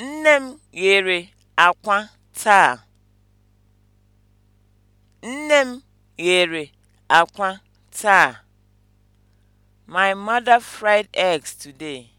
Nne m ghere akwa taa. Nne m ghere akwa taa. My mother fried eggs today.